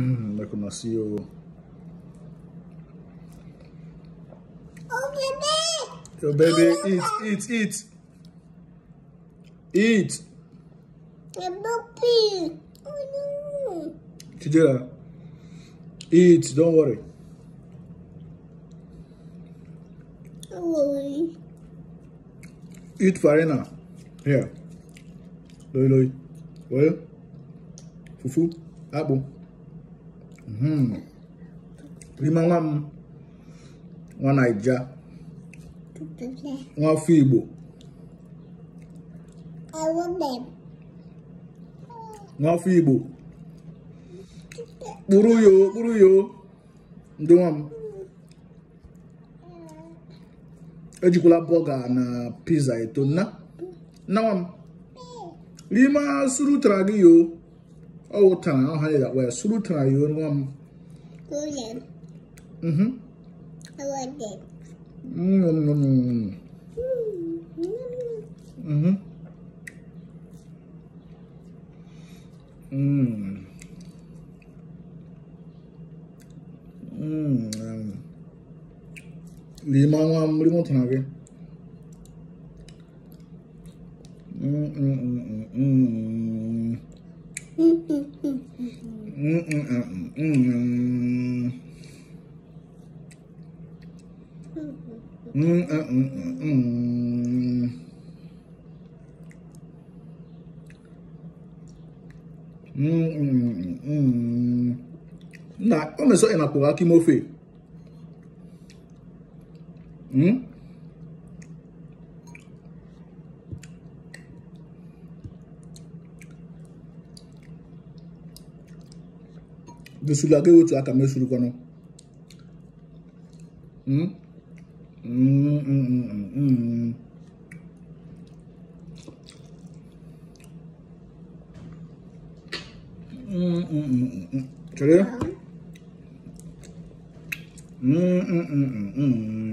look at my Oh, baby. Your baby, eat, eat, eat. Eat. Oh, no. Kijira, eat, don't worry. Don't worry. Eat farina. Here. Loi, loi. Well, fufu, apple. Mm. limangam nwa naija nwafọ igbo igbo yo kpụrụ yo ndị nwa m na pizza eto nna nna nwa m n'ime asụrụ yo Old time, I hate that way. Sulu time, you and one. Golden. Mm hmm. I like it. Mm hmm. Mm hmm. Mm. Mm. Limang, limang, limang. Mm mm mm na o meso ena pụrụ akị mofe de sulage wetu aka suru kono mm mm